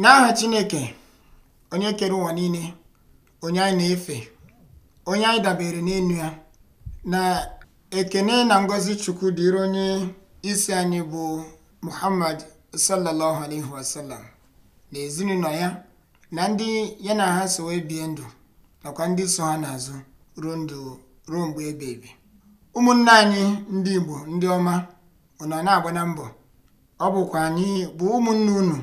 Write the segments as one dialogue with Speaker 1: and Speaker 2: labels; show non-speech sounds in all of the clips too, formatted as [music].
Speaker 1: N'aha Chineke onye kere ụwa niile onye anyị na-efe onye anyị dabere n'elu ya na ekene na ngozi Chukwu dịrị onye isi anyị bụ Muhammad sallallahu alaihi wasallam na ezinụlọ ya na ndị ya na ha so wee bie ndụ nakwa ndị so ha n'azụ ruo ndụ ruo mgbe ebe ụmụnne anyị ndị Igbo ndị ọma ụnọ na-agba na mbọ ọ bụkwa anyị bụ ụmụnne unu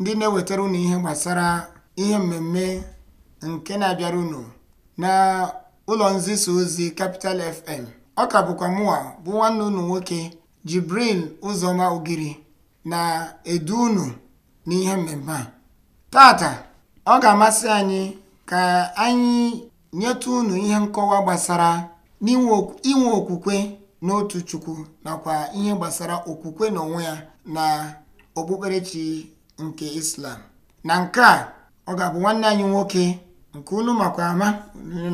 Speaker 1: ndị na-ewetara unu ihe gbasara ihe mmemme nke na-abịara unu na ụlọ nzisa ozi Capital FM ọ ka bụkwa mụwa bụ nwanne unu nwoke Jibril Ụzọma Ogiri na-edu unu n'ihe mmemme a tata ọ ga-amasị anyị ka anyị nyetu unu ihe nkọwa gbasara inwe okwukwe n'otu Chukwu nakwa ihe gbasara okwukwe n'onwe ya na okpukperechi nke islam na nke a ọ ga-abụ nwanne anyị nwoke nke unu makwa ama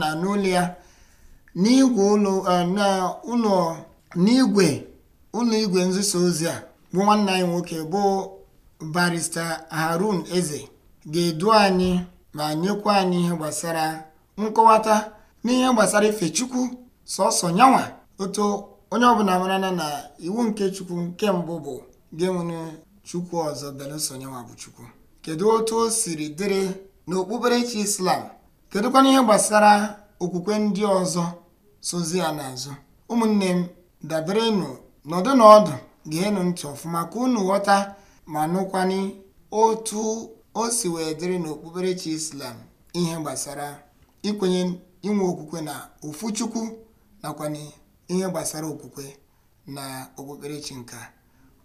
Speaker 1: na n'ụlọ ya n'igwe eh, ụlọ n'igwe ụlọ igwe nziso ozi a bụ nwanne anyị nwoke bụ barista harun eze ga-edu anyị ma nyekwa anyị ihe gbasara nkọwata n'ihe gbasara ife chukwu sọsọ nyanwa otu onye ọbụla marana na iwu nke chukwu nke mbụ bụ ga-enwere chukwu ọzọ belụsọ bụ chukwu kedu otu o siri dịrị n'okpukperechi islam kedụkwana ihe gbasara okwukwe ndị ọzọ sozi ya n'azụ ụmụnne m daberenụ nọdụ na ọdụ geenụ ntị ọfụma ka unu ghọta ma nụkwani otu o si wee dịrị n'okpukperechi islam ihe gbasara ikwenye inwe okwukwe na ofu chukwu nakwana ihe gbasara okwukwe na okpukperechi nka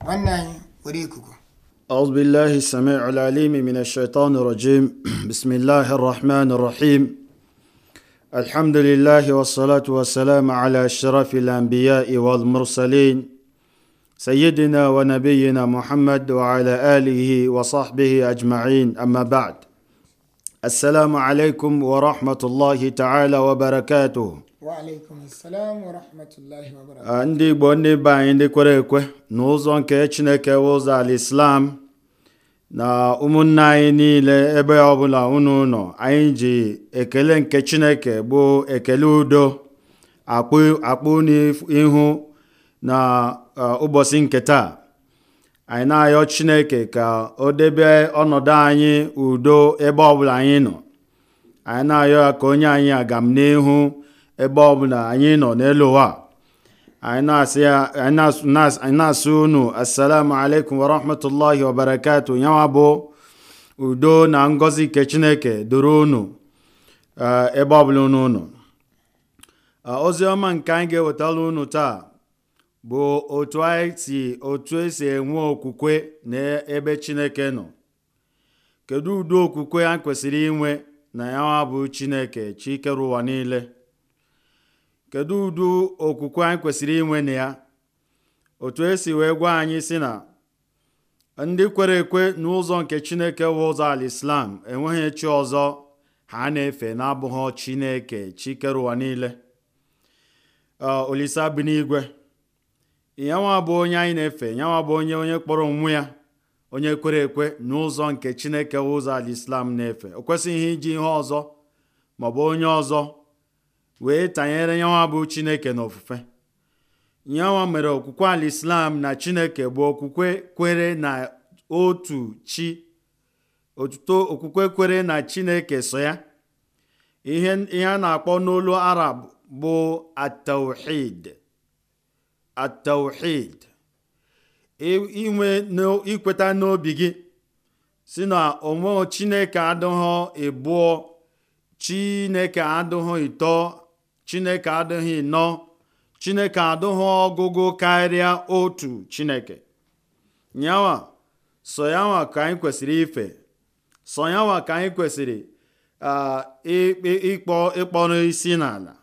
Speaker 1: nwanne anyị
Speaker 2: ọi smmn shitan rgi [clears throat] bismila rahman rahim ahamdulila asalat asalam ala sharflbia iwamursalin sayidnawanabeyina muhammad w alhi wasahb jmain amabd asalamalekum wa rahmatụlọ hitaala wabarakatu Ah, ndị igbo ndị be anyị ndị kwere ekwe na ụzọ nke chineke ụzọ ala islam na ụmụnne anyị niile ebe ọbụla unu nọ anyị ji ekele nke chineke bụ ekele udo akpụ n'ihu na ah, ụbọchị nke taa anyị na-ayọ chineke ka o debe ọnọdụ anyị udo ebe ọbụla anyị nọ anyị na-ayọ ya ka onye anyị agam n'ihu ebe bụla anyị nọ n'elu ụwa anyị na-asị unu assalamu alaikum warahmatullahi wabarakatu yanwa bụ udo na ngozi nke chineke doro unu eh, ebe ọbụla unu unu eh, ozi ọma nke anyị ga-ewetara unu taa bụ otu anyị si otu esi enwe okwukwe n'ebe chineke nọ kedu ụdị okwukwe a kwesịrị inwe na ya bụ chineke chikere ụwa niile kedu ụdị okwukwe anyị kwesịrị inwe na ya otu esi wee gwa anyị si na ndị kwere ekwe n'ụzọ nke chineke bụ ụzọ ala islam enweghị chi ọzọ ha na-efe na-abụghị chineke chi kere ụwa niile olisa bi n'igwe yanwa bụ onye anyị na-efe nyawa bụ onye onye kpọrọ onwe ya onye kwere ekwe n'ụzọ nke chineke bụ ụzọ ala islam na-efe o kwesịghị iji ihe ọzọ maọbụ onye ọzọ wee tanyere yanwa bụ chineke na ofufe yanwa mere okwukwe ala islam na chineke bụ okwukwe kwere na otu chi otuto okwukwe kwere na chineke so ya ihe a na-akpọ n'olu arab bụ atawhid atawhid inwe ikweta n'obi gị si na onwe chineke adịghị ịbụọ chineke adịghị ịtọ chineke adịghị nọ chineke adịghị ọgụgụ karịa otu chineke nyawa sọyanwa ka anyị kwesịrị ife sọyanwa ka anyị kwesịrị ịkpọ ịkpọrọ isi n'ala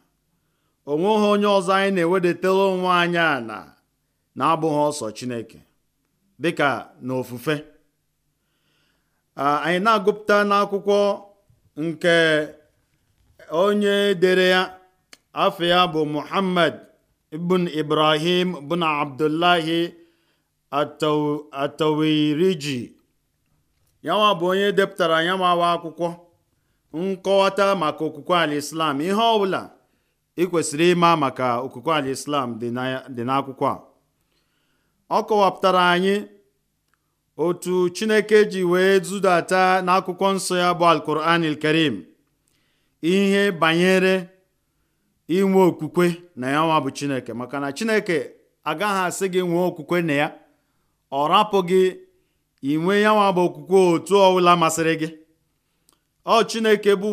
Speaker 2: onweghị onye ọzọ anyị na-ewedetara onwe anyị ala na-abụghị ọsọ chineke dịka na ofufe anyị na-agụpụta n'akwụkwọ nke onye dere ya afọ ya bụ muhammad ibn ibrahim ibn abdullahi atawiriji yanwa bụ onye depụtara yanwawa akwụkwọ nkọwata maka okwukwe islam ihe ọbụla ị kwesịrị ịma maka okwukwe islam dị n'akwụkwọ a ọ kọwapụtara anyị otu chineke ji wee zudata n'akwụkwọ nsọ ya bụ alkuranil karim ihe banyere inwe okwukwe na ya nwa bụ chineke maka na chineke agaghị asị gị nwee okwukwe na ya ọ rapụ gị inwe ya nwa bụ okwukwe otu ọwụla masịrị gị ọ chineke bụ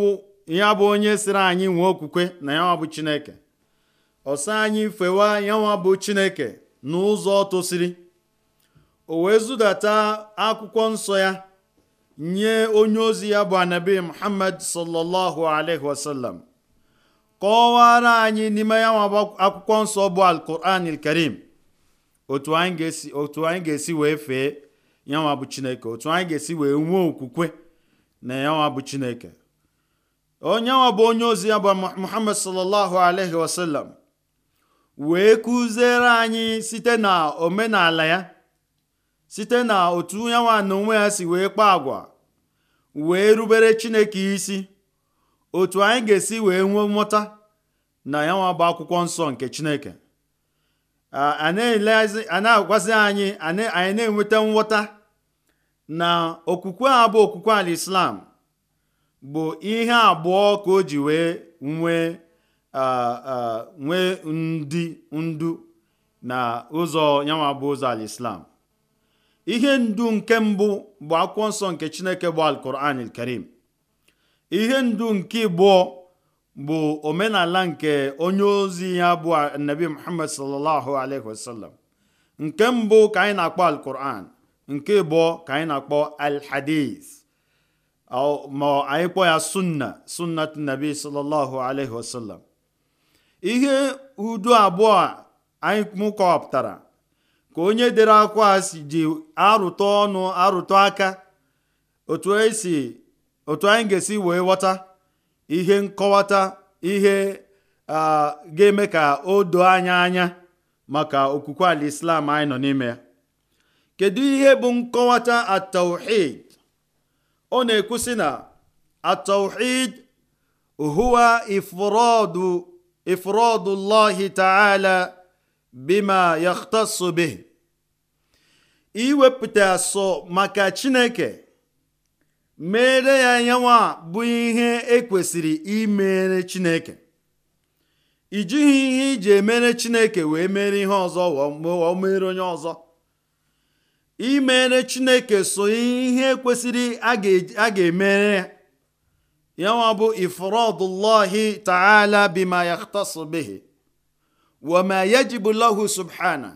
Speaker 2: ya bụ onye siri anyị nwee okwukwe na ya nwa bụ chineke ọsọ anyị fewa ya nwa bụ chineke n'ụzọ tosiri o wee zudata akwụkwọ nsọ ya nye onye ozi ya bụ anabi muhammad sallallahu alaihi wasallam kọwara anyị n'ime ya nwa akwụkwọ nsọ bụ alkuran karim otu anyị ga-esi wee fee yanwa bụ chineke otu anyị ga-esi wee nwee okwukwe na yanwa bụ chineke onye nwa bụ onye ozi ya bụ muhammad sallallahu alaihi wasallam wee kụziere anyị site na omenala ya site na otu yanwa na onwe ya si wee kpaa agwa wee rubere chineke isi otu anyị ga-esi wee nwee mmụta na ya nwa bụ akwụkwọ nsọ nke chineke a na-agwazi anyị anyị na-enweta nghọta na okwukwe a bụ okwukwe ala islam bụ ihe abụọ ka o ji wee nwee nwee ndị ndu na ụzọ yanwa bụ ụzọ ala islam ihe ndu nke mbụ bụ akwụkwọ nsọ nke chineke bụ alquran karim. ihe ndu nke ịbụọ bụ omenala nke onye ozi ya bụ nabi muhammad sallallahu alaihi wasallam nke mbụ ka anyị na-akpọ alquran nke ịbụọ ka anyị na-akpọ alhadis ma anyị kpọ ya sunna sunnat nabi sallallahu alaihi wasallam ihe udu abụọ anyị mụkọpụtara ka onye dere akwa si ji arụtụ ọnụ arụtụ aka otu esi otu anyị ga-esi wee ghọta ihe nkọwata ihe ga-eme ka o doo anya anya maka okwukwe ala islam anyị nọ n'ime ya kedu ihe bụ nkọwata atawhid ọ na-ekwusi na atawhid huwa ifradu ifradu llahi ta'ala bima yakhtassu bih iwepụta sọ maka chineke mere ya nyanwa bụ ihe ekwesịrị imere chineke i ihe iji emere chineke wee mere ihe ọzọ o mere onye ọzọ imere chineke so ihe kwesịrị a ga-emere yanwa bụ ifuru ta'ala bima yaktasu bihi subhana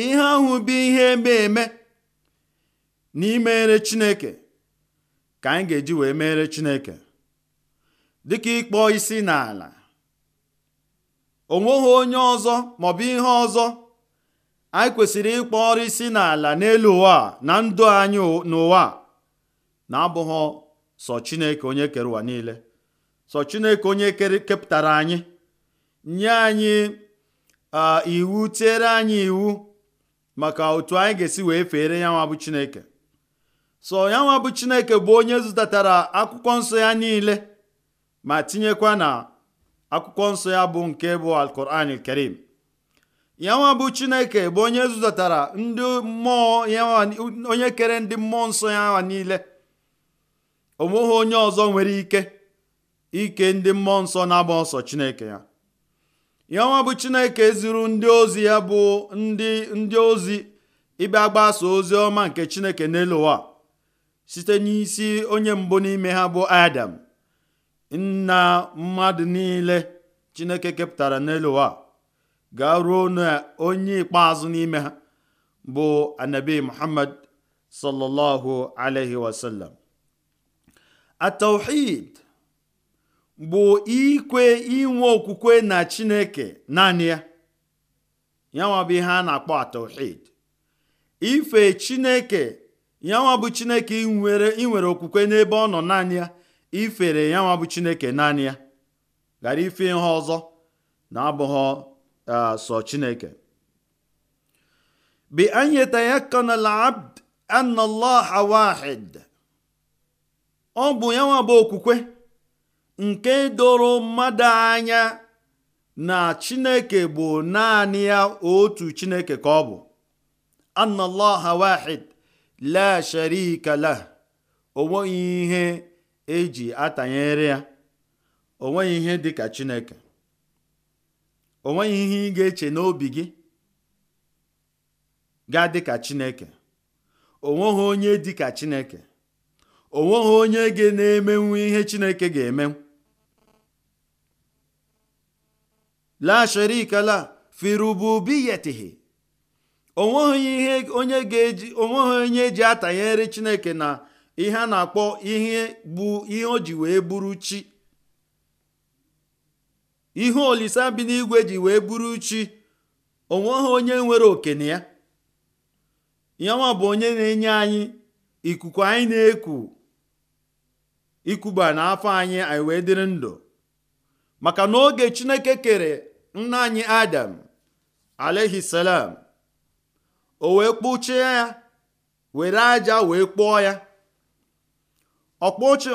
Speaker 2: ihe ahụ bụ ihe eme eme na imere chineke ka anyị ga-eji wee meere Chineke dịka ịkpọ isi n'ala nweghị onye ọzọ maọbụ ihe ọzọ anyị kwesịrị ịkpọ ọrụ isi n'ala n'elu ụwa na ndụ anyị n'ụwa na-abụghị sọ Chineke onye kere ụwa niile sọ Chineke onye kepụtara anyị nye anyị iwu tiere anyị iwu maka otu anyị ga-esi wee fere ya nwa bụ Chineke so ya nwa bụ chineke bụ onye zụtatara akwụkwọ nsọ ya niile ma tinyekwa na akwụkwọ nsọ ya bụ nke bụ alkuran karim ya nwa bụ chineke bụ onye zụtatara ndị mmụọ onye kere ndị mmụọ nsọ ya niile onweghị onye ọzọ nwere ike ike ndị mmụọ nsọ na-agba ọsọ chineke ya ya nwa bụ chineke zuru ndị ozi ya bụ ndị ndị ozi ịbịa gbaso ozi ọma nke chineke n'elu ụwa site n'isi onye mbụ n'ime ha bụ adam nna mmadụ niile chineke kepụtara n'elu ụwa ga ruo na onye ikpeazụ n'ime ha bụ anabi muhammad sallallahu alaihi wasallam atauhid bụ ikwe inwe okwukwe na chineke naanị ya nwa bụ ihe a na-akpọ atauhid ife chineke ya nwa bụ chineke nwere inwere okwukwe n'ebe ọ nọ naanị ya ifere ya chineke naanị ya ghara ife ihe ọzọ na-abụghị sọ chineke bi anyị yatayakana abd anna Allah wahid ọ bụ ya bụ okwukwe nke doro mmadụ anya na chineke bụ naanị ya otu chineke ka ọ bụ anna Allah la sharika la o nweghị ihe eji atanyere ya o nweghị ihe dị ka chineke o nweghị ihe ị ga-eche n'obi gị ga-adị ka chineke o nweghị onye dị ka chineke o nweghị onye ga na-emenwu ihe chineke ga-eme la sharika la fi rububiyatihi onweghị ihe onye ga-eji onweghị onye ji atanyere chineke na ihe a na-akpọ ihe bụ ihe o ji wee bụrụ chi ihe olisa bi n'igwe ji wee bụrụ chi onweghị onye nwere oke na ya yanwa bụ onye na-enye anyị ikuku anyị na-eku ikuba n'afọ anyị anyị wee dịrị ndụ maka na oge chineke kere nna anyị adam alaihi o wee kpụchie ya were aja wee kpụọ ya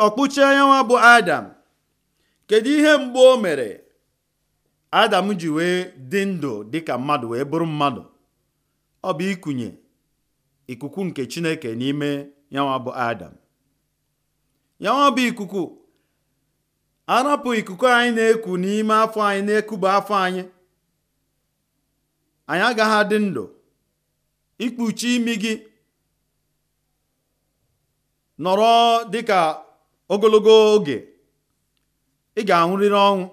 Speaker 2: ọkpụchie ya nwa bụ adam kedu ihe mgbe o mere adam ji wee dị ndụ dịka mmadụ wee bụrụ mmadụ ọ bụ ikunye ikuku nke chineke n'ime yanwa bụ adam yanwa bụ ikuku arapụ ikuku anyị na-eku n'ime afọ anyị na-ekuba afọ anyị anyị agaghị adị ndụ ikpuchi imi gị nọrọ dịka ogologo oge ị ga-anwụrịrị ọnwụ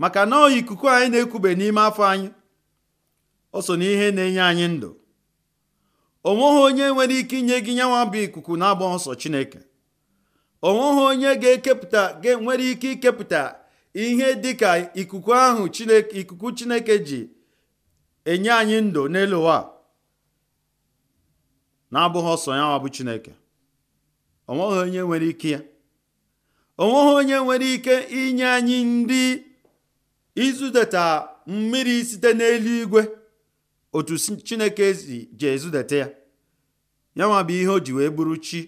Speaker 2: maka na ikuku anyị na-ekube n'ime afọ anyị o so n'ihe na-enye anyị ndụ onweghị onye nwere ike inye gị nyanwa bụ ikuku na-agba nsọ Chineke onweghị onye ga-ekepụta nwere ike ikepụta ihe dịka ikuku ahụ ikuku Chineke ji enye anyị ndụ n'elu ụwa na-abụghị ọsọ ya nwa bụ Chineke onweghị onye nwere ike ya onweghị onye nwere ike inye anyị ndị izudeta mmiri site n'eluigwe otu Chineke ji ezudeta ya ya nwa bụ ihe o ji wee bụrụ chi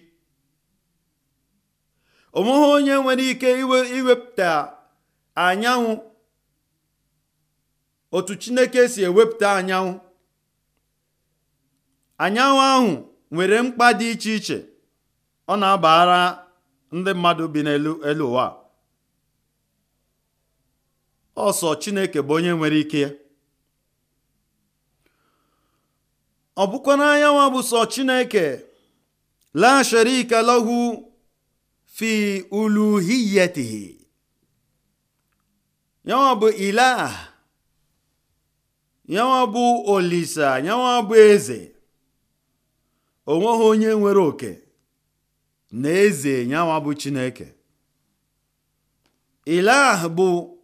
Speaker 2: onweghị onye nwere ike iwepụta anyanwụ otu Chineke si ewepụta anyanwụ anyanwụ ahụ nwere mkpa dị iche iche ọ na-abara ndị mmadụ bi n'elu elu ụwa ọsọ Chineke bụ onye nwere ike ya ọ bụkwa n'anyanwa bụ sọ Chineke la sharika lahu fi uluhiyatihi yanwa bụ ilah yanwa bụ olisa yanwa bụ eze onweghị onye nwere oke na eze nyanwa bụ chineke ilah bụ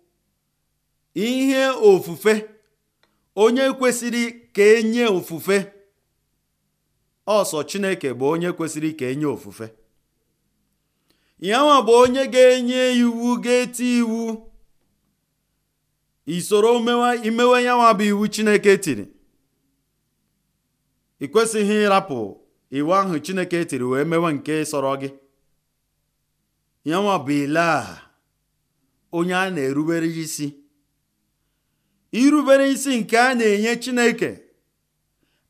Speaker 2: ihe ofufe onye kwesịrị ka enye ofufe ọsọ chineke bụ onye kwesịrị ka enye ofufe yanwa bụ onye ga-enye iwu ga-eti iwu isoro imewe yanwa bụ iwu chineke tiri ị kwesịghị ịrapụ iwu ahụ chineke tiri wee mewe nke sọrọ gị yanwa bụ a onye a na-erubere isi irubere isi nke a na-enye chineke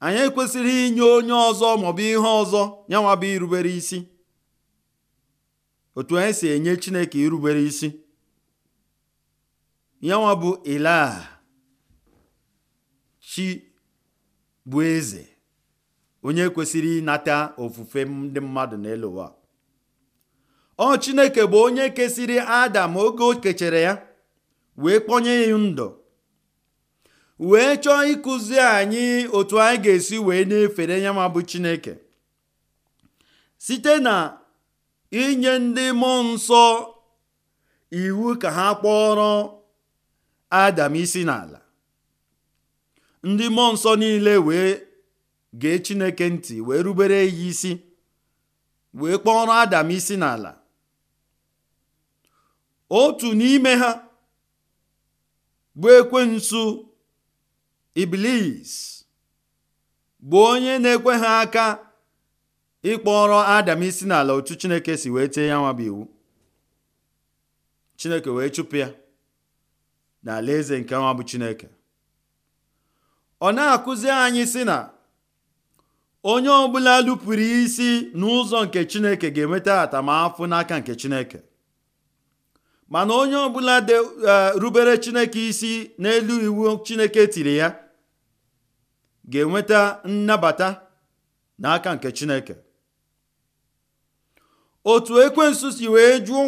Speaker 2: anyị kwesịrị inye onye ọzọ maọbụ ihe ọzọ yanwa bụ irubere isi otu anyị si enye chineke irubere isi yanwa bụ ilaha chi bụ eze onye kwesịrị ịnata ofufe ndị mmadụ n'elu ụwa ọ chineke bụ onye kesịrị adam oge o kechere ya wee kpọnye ya ndụ wee chọọ ịkụzi anyị otu anyị ga-esi wee na-efere ya ma bụ chineke site na inye ndị mmụọ nsọ iwu ka ha kpọrọ adam isi n'ala ndị mmụọ nsọ niile wee gee chineke ntị wee rubere ya isi wee kpọrọ adam isi n'ala otu n'ime ha bụ ekwensu iblis bụ onye na-ekwe ha aka ịkpọrọ adam isi n'ala otu chineke si wee tee ya nwa bụ iwu chineke wee chụpụ ya eze nke nwa bụ chineke ọ na-akụzi anyị si na onye ọbụla lupụrụ isi n'ụzọ nke chineke ga-enweta atamafụ n'aka nke chineke mana onye ọbụla de rubere chineke isi n'elu iwu chineke tiri ya ga-enweta nnabata n'aka nke chineke otu ekwensu si wee jụ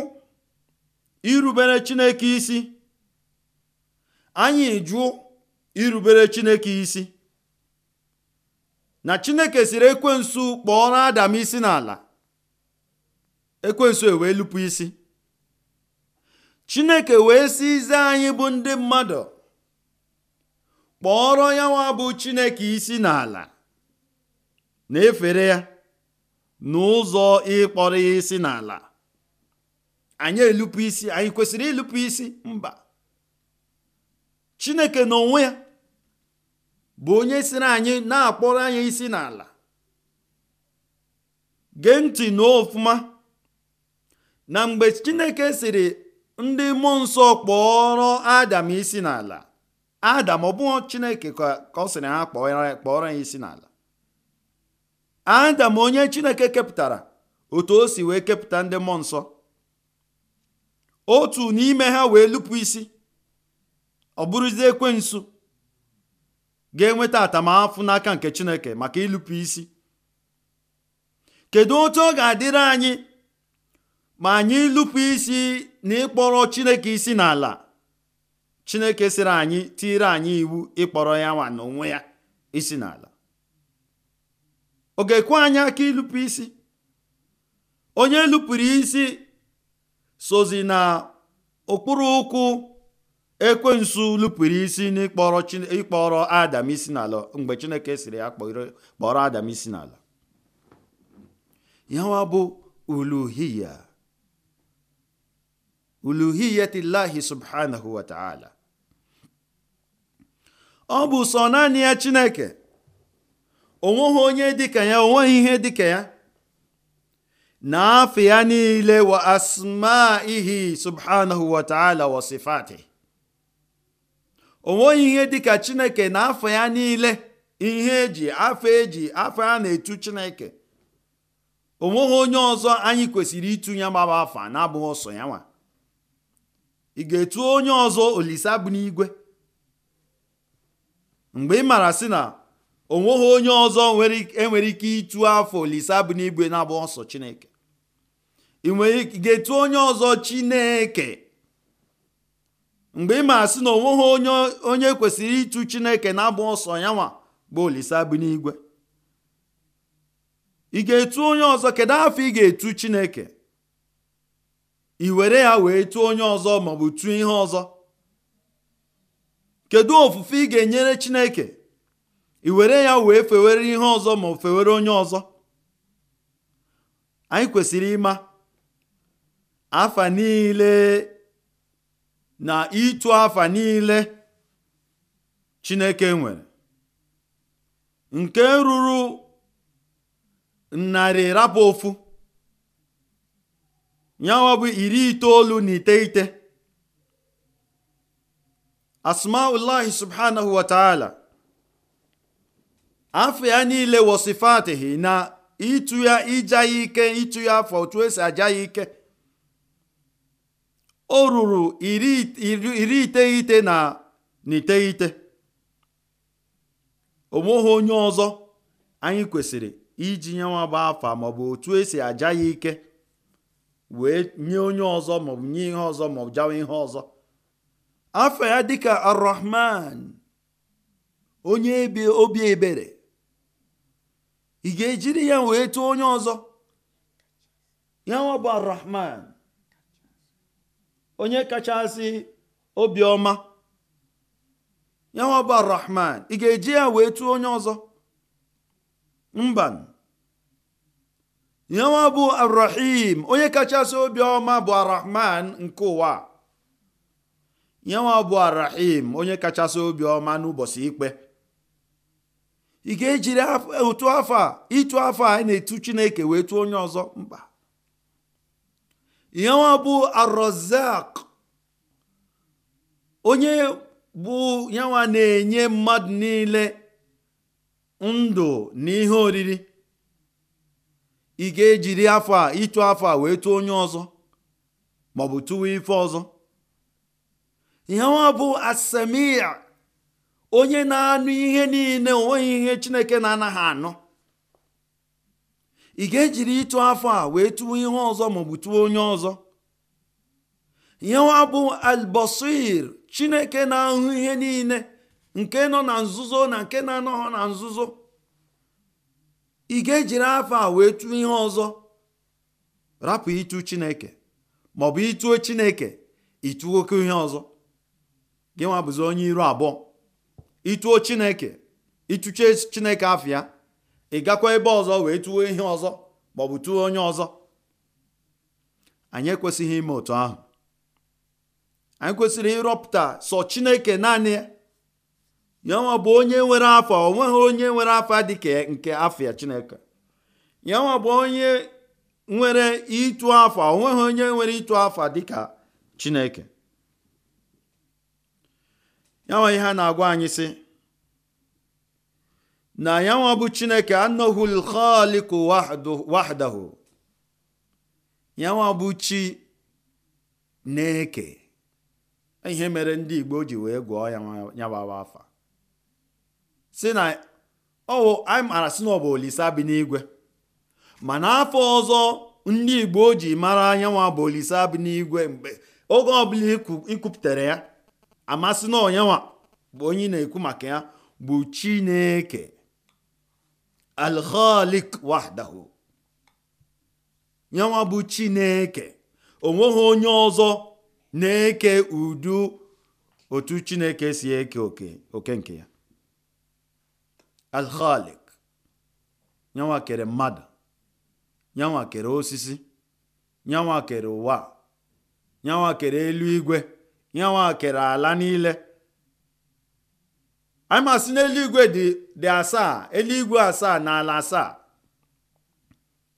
Speaker 2: irubere chineke isi anyị jụ irubere chineke isi na chineke siri ekwensu kpọọ adam isi n'ala ekwensu ewee lupu isi chineke wee si ize anyị bụ ndị mmadụ kpọọrọ ya nwa bụ chineke isi n'ala na-efere ya n'ụzọ ịkpọrọ ya isi n'ala anyị elupu isi anyị kwesịrị ịlụpụ isi mba chineke n'onwe ya bụ onye siri anyị na-akpọrọ anyị isi n'ala gee ntị ọfụma na mgbe chineke siri ndị mmụọ nsọ kpọrọ adam isi n'ala adam ọ bụghị chineke ka ọ sịrị ha kpọrọ ya isi n'ala adam onye chineke kepụtara otu o si wee kepụta ndị mmụọ nsọ otu n'ime ha wee lupu isi ọ bụrụzie nsu ga-enweta atamahụfụ n'aka nke chineke maka ịlụpụ isi kedu otu ọ ga-adịrị anyị ma anyị lupu isi na ịkpọrọ chineke isi n'ala chineke siri anyị tiire anyị iwu ịkpọrọ ya nwa na onwe ya isi n'ala ọ ga-ekwe anyị aka ịlụpụ isi onye lụpụrụ isi sozi na ụkwụ ekwensu lupụrụ isi n'ịkpọrọ adam isi n'ala mgbe chineke siri ya kpọrọ adam isi n'ala yawa bụ uluhiya uluhiyatillahi subhanahu wa ta'ala ọ bụ sọ naanị ya chineke onweghị onye dịka ya onweghị ihe dịka ya na afọ ya niile wa asmaihi subhanahu wa ta'ala wa sifatihi onweghị ihe dịka chineke na afọ ya niile ihe eji afọ eji afọ ya na-etu chineke onweghị onye ọzọ anyị kwesịrị ịtụnye gbaba afa na-abụghị ọsọ ya nwa ị ga-etu onye ọzọ olisa bụ n'igwe mgbe ị maara sị na onweghị onye ọzọ enwere e ike ịtụ afọ olise bụ n'igwe na-abụghị ọsọ chineke ị ga-etu onye ọzọ chineke mgbe ị ma sị na onweghị onye onye kwesịrị ịtụ chineke na-abụ ọsọ ya nwa bụ olise bi n'igwe ị ga-etu onye ọzọ kedu afọ ị ga-etu chineke ị were ya wee tụọ onye ọzọ maọbụ tụọ ihe ọzọ kedu ofufe ị ga-enyere chineke ị were ya wee fewere ihe ọzọ ma fewere onye ọzọ anyị kwesịrị ịma afa niile na ịtụ afa niile Chineke nwere nke ruru narị rapụ ofu nyawa bụ iri itoolu na iteghete asmaullahi subhanahu wa ta'ala afọ ya niile wosifatihi na ịtụ ya ija ya ike ịtụ ya afọ otu esi aja ya ike o ruru iri iteghete na iteghete onweghị onye ọzọ anyị kwesịrị iji nye nwa afa maọbụ otu esi aja ya ike wee nye onye ọzọ maọbụ nye ihe ọzọ maọbụ jawa ihe ọzọ afa ya dịka arrahman onye obi ebere ị ga-ejiri ya wee tụọ onye ọzọ ya nwa bụ arrahman onye kachasị obiọma yanwa bụ arahman ị ga-eji ya wee tụọ onye ọzọ mba yanwa bụ arahim onye kachasị obiọma bụ arahman nke ụwa yanwa bụ arahim onye kachasị obiọma n'ụbọchị ikpe ị ga-ejiri ụtụ afọ a ịtụ afọ a na-etu chineke wee tụọ onye ọzọ mba nwa bụ arozak onye bụ yanwa na-enye mmadụ niile ndụ na ihe oriri ị ga-ejiri afọ a ịtụ afọ a wee tụọ onye ọzọ maọbụ tụwa ife ọzọ nwa bụ asamia onye na-anụ ihe niile onweghị ihe chineke na-anaghị anọ. ị ga-ejiri ịtụ afọ a wee tụọ ihe ọzọ maọbụ tụọ onye ọzọ ihe wa bụ albasir chineke na-ahụ ihe niile nke nọ na nzuzo na nke na-anọghọ na nzuzo ị ga-ejiri afọ a wee tụọ ihe ọzọ rapụ ịtụ chineke maọbụ ịtụo chineke ịtụo oke ihe ọzọ gị nwa bụzi onye iru abụọ ịtụo chineke ịtụche chineke afọ ya ị gakwa ebe ọzọ wee tụọ ihe ọzọ maọbụ tụọ onye ọzọ anyị ekwesịghị ime otu ahụ anyị kwesịrị ịrọpụta sọ chineke naanị ya nwa bụ onye nwere afa o nweghị onye nwere afa dịka nke afịa chineke ya nwa bụ onye nwere ịtụ afa o nweghị onye nwere ịtụ afa ka chineke ya nwa ihe a na-agwa anyị si. na yanwa bụ chineke anọghị lkhaliku wahdahu yanwa bụ chi na-eke ihe mere ndị igbo ji wee gwọọ ya afa si na ọwụ anyị mara si na ọ olisa bi n'igwe mana afọ ọzọ ndị igbo ji mara anyanwa bụ olisa bi n'igwe mgbe oge ọbụla ikwupụtara ya amasị na onyanwa bụ onye na-ekwu maka ya bụ chineke alkhalik wahdahu yanwa bụ chineke onweghị onye ọzọ na-eke udu otu chineke si eke oke oke nke ya alkhalik yanwa kere mmadụ yanwa kere osisi yanwa kere ụwa yanwa kere eluigwe yanwa kere ala niile anyị ma sị na eluigwe dị asaa eluigwe asaa na ala asaa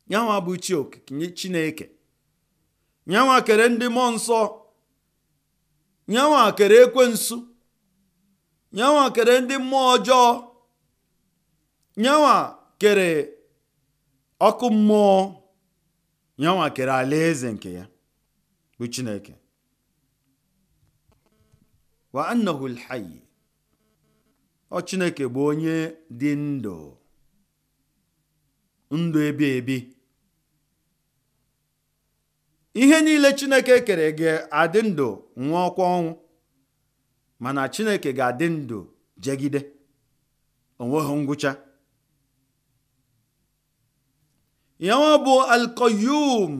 Speaker 2: nyanwa bụ chi chineke nyanwa kere ndị mmụọ nsọ nyanwa kere ekwensu nyanwa kere ndị mmụọ ọjọọ nyanwa kere ọkụ mmụọ nyanwa kere alaeze nke ya bụ chineke wa annahu alhayy ọ chineke bụ onye dị ndụ ndụ ebi ebi ihe niile chineke kere ga-adị ndụ nwa ọkwa ọnwụ mana chineke ga-adị ndụ jegide onweghị ngwụcha ya bụ alkoyum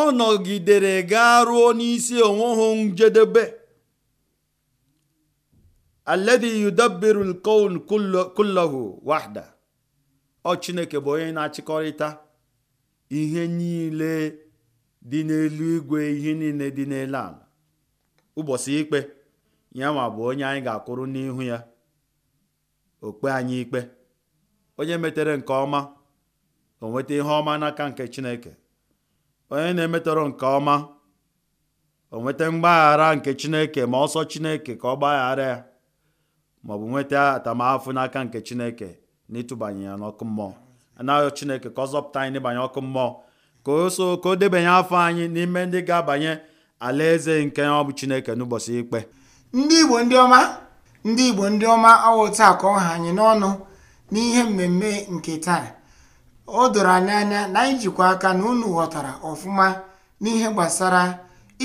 Speaker 2: ọ nọgidere gaa ruo n'isi onweghị njedebe alladhi yudabbiru al-kawn wahda ọ chineke bụ onye na-achịkọrịta ihe niile dị n'elu igwe ihe niile dị n'elu ala ụbọchị ikpe ya ma bụ onye anyị ga akụrụ n'ihu ya okpe anyị ikpe onye metere nke ọma o nweta ihe ọma n'aka nke chineke onye na-emetọrọ nke ọma o mgbaghara nke chineke ma ọsọ chineke ka ọ gbaghara ya bụ nweta atamahụfụ n'aka nke chineke na ịtụbanye ya n'ọkụ mmụọ anaghị chineke ka ọ zọpụta anyị n'ịbanye ọkụ mmụọ ka o so ka o debanye afọ anyị n'ime ndị ga-abanye alaeze nke ọ bụ chineke n'ụbọchị ikpe
Speaker 1: ndị igbo ndị ọma ndị igbo ndị ọma awụta ka ọ ha anyị n'ọnụ n'ihe mmemme nke taa o doro anyị anya na anyị jikwa aka na unu ghọtara ọfụma n'ihe gbasara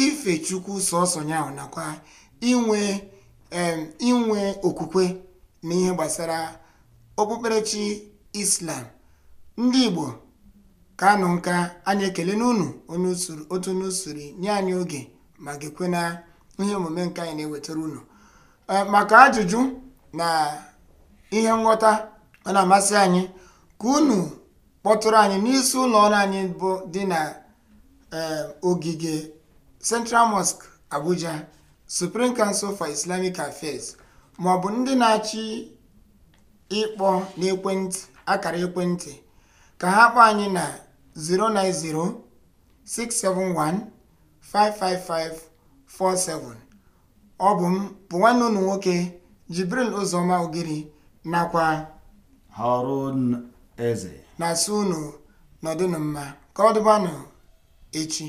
Speaker 1: ife chukwu sọsọ ya nakwa inwe inwe okwukwe na ihe gbasara okpukperechi islam ndị igbo ka anụ nka anyị ekele n'unu otu n'usoro nye anyị oge ma gekwe na ihe omume nka anyị na-ewetara unu eh, maka ajụjụ na ihe nghọta ọ na-amasị anyị ka unu kpọtụrụ anyị n'isi ụlọ ọrụ anyị bụ dị na eh, ogige Central Mosque Abuja Supreme Council for Islamic Affairs ma ọ bụ ndị na-achị ịkpọ n'ekwentị akara ekwentị ka ha kpọọ anyị na 09067155547 ọ bụ m bụ nwanne unu nwoke Jibril Ụzọma Ogiri nakwa Harun Eze na-asị unu nọdụnụ mma ka ọ echi